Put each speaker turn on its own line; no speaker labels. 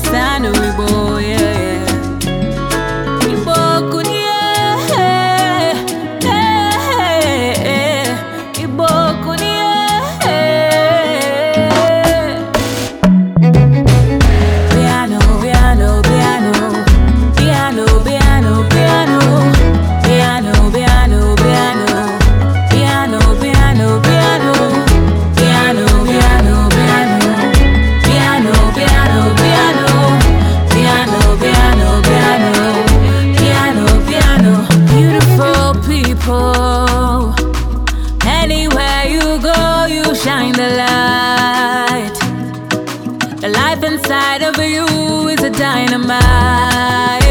kwa no wigbo W is a dynamite.